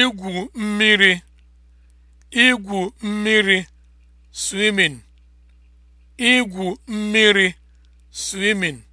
igwu mmiri igwu mmiri swimming